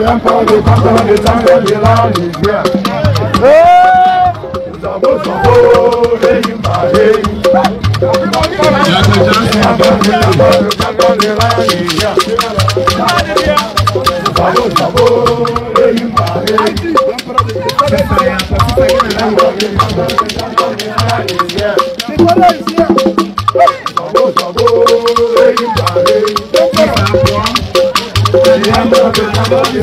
Yẹn kọ́ di kọ́kọ́ di sáńgẹ̀ di láàlì gbé. Ìsàbòsàbò lẹ́yìn pàdé. Ìsàbòsàbò lẹ́yìn pàdé. Ìsàbòsàbò lẹ́yìn pàdé. Thank you.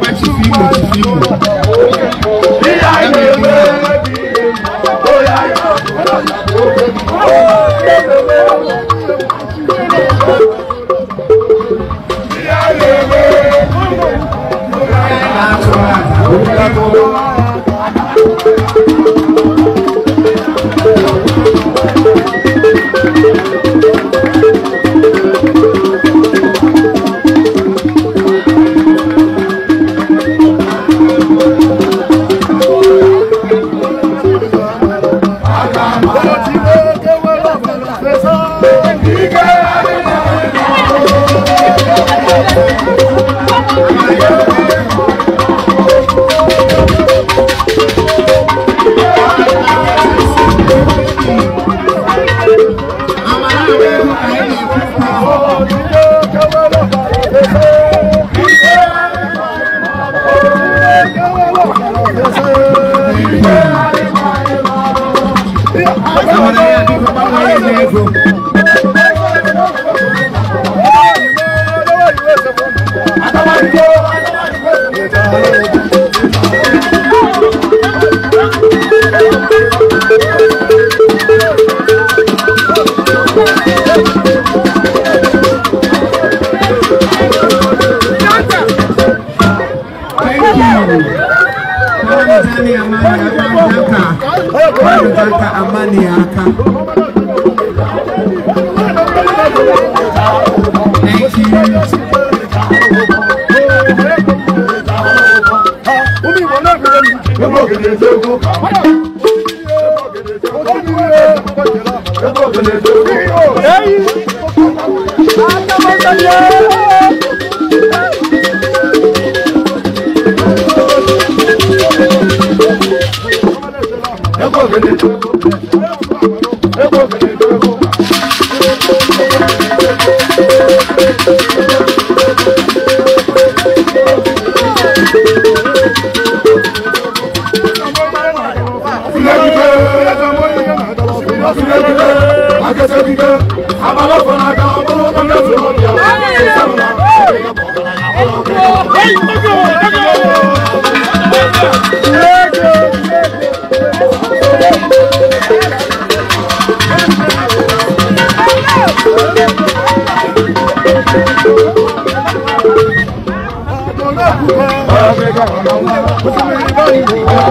Thank you. Nyaka Nyaka Amani Aka. Thank you. Don't go, Thank you.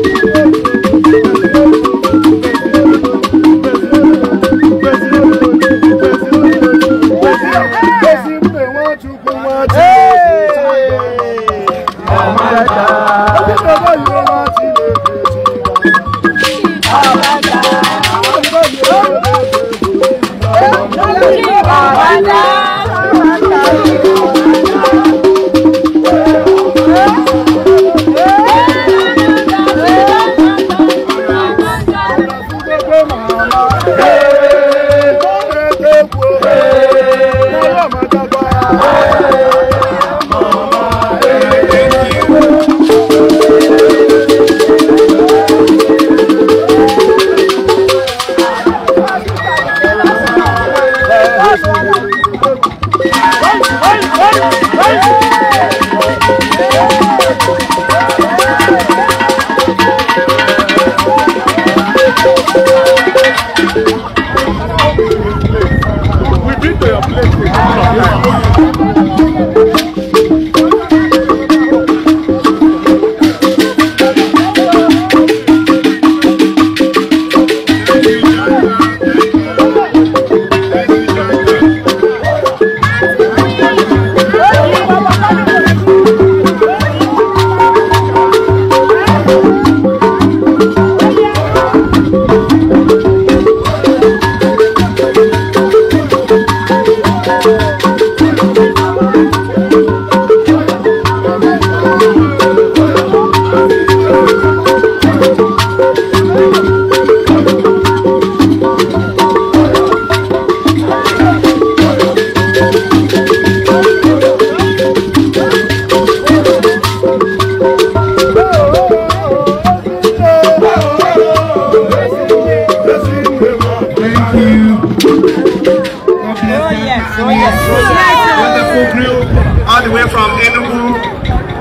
wonderful group all the way from Enugu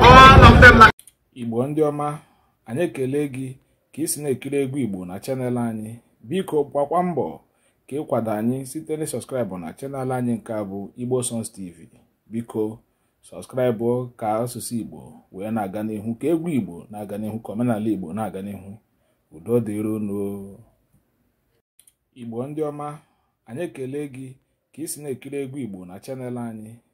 all of them Igbo ndị ọma anyị ekele gị ka ị si na-ekiri egwu Igbo na chanel anyị biko gbakwa mbọ ka ịkwado anyị site na sọskraịbụ na chanel anyị nke a bụ Igbo Sons TV biko sọskraịbụ ka asụsụ Igbo wee na-aga n'ihu ka egwu Igbo na-aga n'ihu ka omenala Igbo na-aga n'ihu udo dịrono Igbo ndị ọma anyị ekele gị ka ị si na-ekiri egwu Igbo na chanel anyị